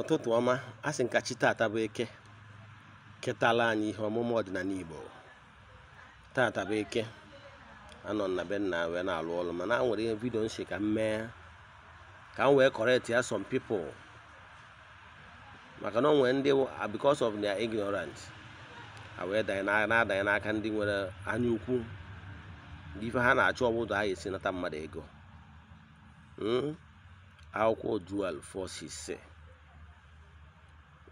ụtụtụ ọma a sị nkachi taata bụ eke ketala anyị ihe ọmụmụ ọdịnala Igbo taata bụ eke anọ na be nna wee na-alụ ọrụ mana a nwere ihe vidio nsi ka m mee ka m wee correct ya som people maka na ọ nwere ndị ah, because of their ignorance wee na-adanye n'aka ndị nwere anya ukwu ife ha na-achọ ọbụdụ anyị esi nata mmadụ ego hmm? akwụkwọ dual forces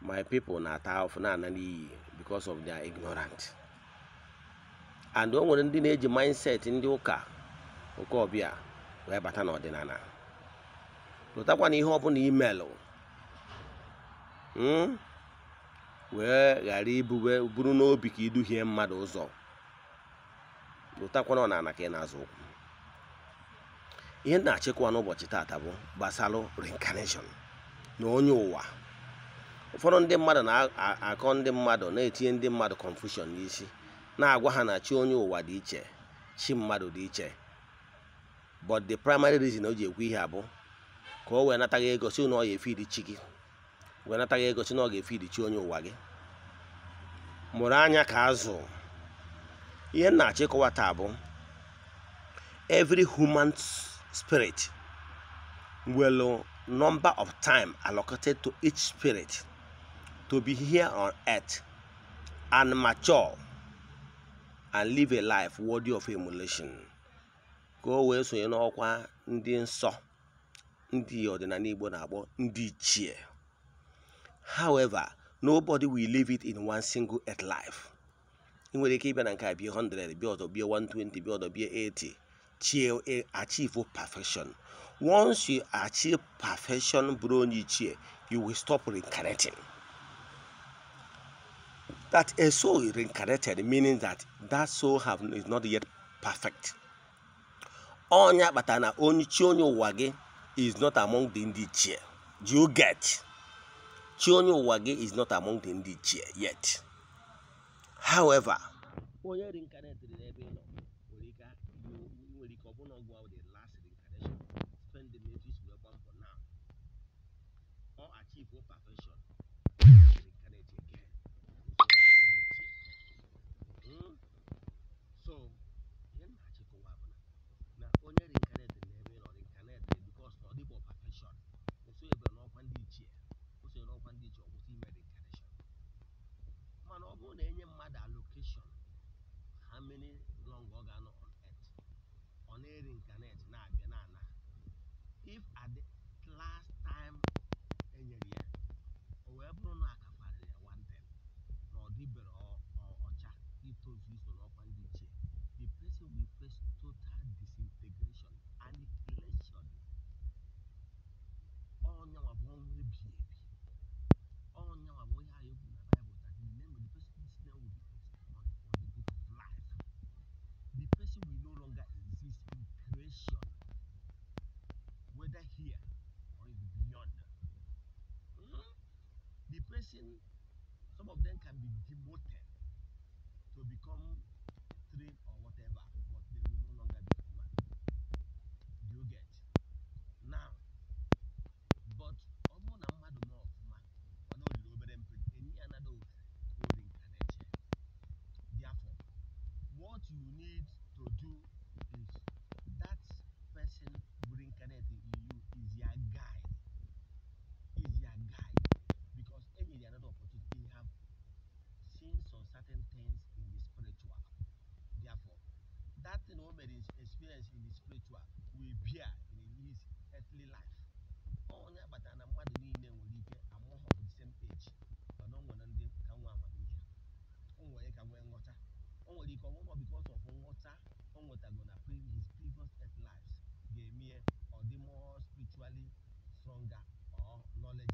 my people na-ata ahụfụ na-ana iyi because of their ignorance and o nwere ndị na-eji mindset ndị ụka oke ọbịa wee bata n'ọdịnala lụtakwa na ihe ọbụla imelụ hmm, wee ghara ibube buru n'obi ka iduhie mmadụ ụzọ lụtakwana ọnala ka ị na-azụ ụkwụ ihe na-achịkwa n'ụbọchị taata bụ gbasalụ reincarnation na onye ụwa ụfọdụ ndị mmadụ na-akọ ndị mmadụ na-etinye ndị mmadụ confusion n'isi na-agwa ha na chi onye ụwa dị iche chi mmadụ dị iche but the primary reason o ji ekwu ihe abụ ka o wee nataghị egosi si na ọ ya efe iri chi gị wee nataghị ego na ọ ga-efe iri chi onye ụwa gị mụrụ anya ka azụ ihe na-achọ taa bụ every human spirit will number of time allocated to each spirit to be here on earth and mature and live a life worthy of emulation ka o wee sonye n'ọkwa ndị nsọ ndị ọdịnala Igbo na-akpọ ndị ichie however nobody will live it in one single earth life ị nwere ike ịbịa na nke a bie 100 bịa ọzọ bie 120 bịa ọzọ bie 80 chie achieve perfection once you achieve perfection bụrụ onye ichie you will stop reincarnating that a soul is reincarnated, meaning that that soul have, is not yet perfect. Onya batana onye wage is not among the indichie. Do you get? Chionyo wage is not among the indichie yet. However, reincarnated nọ the last reincarnation spend the for now or achieve perfection mini long ọ ga-anọ on earth ọ na-erincarnate na-abịa na ana if at the last time enyere ya o wee bụrụ na akafarịrị ya nwante na ọ dịbere ọcha itozu iso n'ọkwa ndị ichie the person will face total disillusion person, some of them can be demoted to become trade or whatever, but they will no longer be human. You get now, but Therefore, what you need to do is some experience in the spiritual will bear in his earthly life onye agbata na mmadụ niile nwere ike amụghọ bụ the same age mana o nwere ndị ka nwee amamihe o nwere ka nwee nghọta o nwere ike ọnwụnọ because of nghọta o nwetago na his previous earth lives ga-eme ọ dị more spiritually stronger or knowledge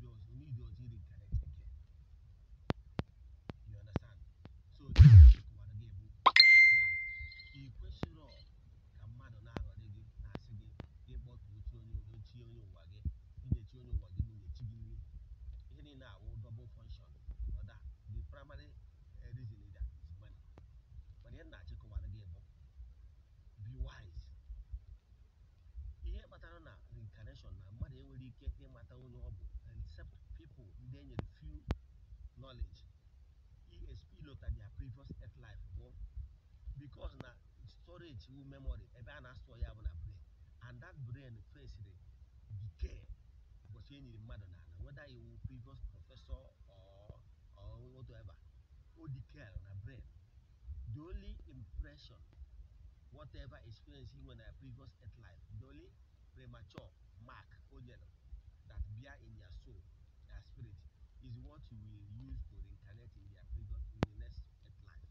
money reason either. money. But not come again. Be wise. ihe kpatara reincarnation na mmadụ enwere ike ịmata onye ọ except people ndị e few knowledge esp lota their previous earth life because na storage wu memory a na-asọ ya bụ na brain and that brain faced decay ụbọchị e nyere whether previous professor Odikell, my brain. The only impression, whatever experiencing when a previous at life, the only premature mark, Ojelo, that bear in your soul, your spirit, is what you will use to reincarnate in your previous, in the next at life,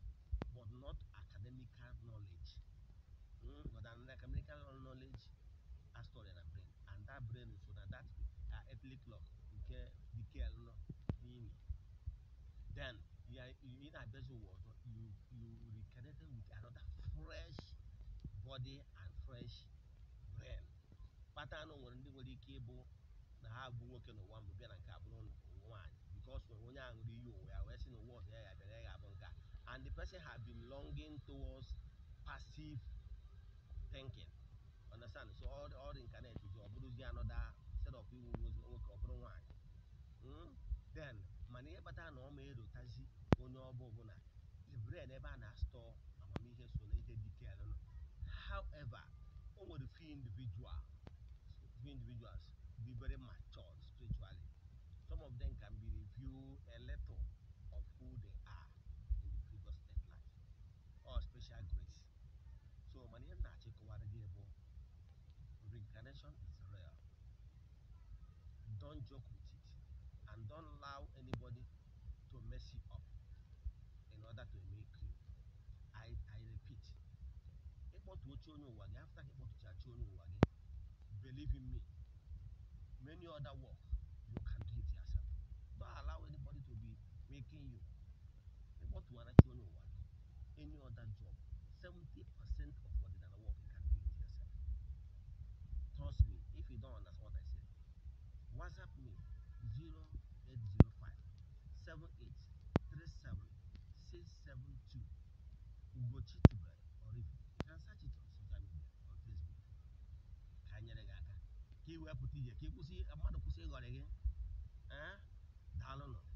but not academic knowledge. Mm, but academic knowledge, a story and a brain, and that brain is so that that uh, earthly clock, okay, decay, that vessel water, you you reconnected with another fresh body and fresh brain. Kpata anụ nwere ndị nwere ike ịbụ na ha bụ nwoke n'ụwa mbụ bịa na nke abụrụ nwaanyị because nwere onye ahụ nri iyi onwe ya wee sị na ụwa ọzọ ya ya bịara ya abụ nke and the person have been longing towards passive thinking understand so all all incarnate ọ bụrụzie another set of iwu nwoke ọ bụrụ nwaanyị then mana ihe kpatara na ọ ma erotazi onye ọbụ ọbụla brain ebe a na-astọ amamihe so na ihe detail nọ however o nwere few individuals, few individuals be very mature spiritually some of them can be review a little of who they are in the previous state life or special grace so mana ihe na-achịkọwara gị bụ reincarnation is real don't joke with it and don't allow anybody kpọtuo onye ụwa gị afta ka ịkpọtụchachi onye ụwa gị believe in me many other work you can do it yourself don't allow anybody to be making you ịkpọtụwara chi onye ụwa gị any other job 70% of what ordinary work you can do it yourself trust me if you don't understand what I said, whatsapp me 0805 7837 672 Ugochi search it on social media on Facebook. Kanya le gaka. Ki we puti ya ki kusi amado kusi ngore gen. Eh? Dalo no.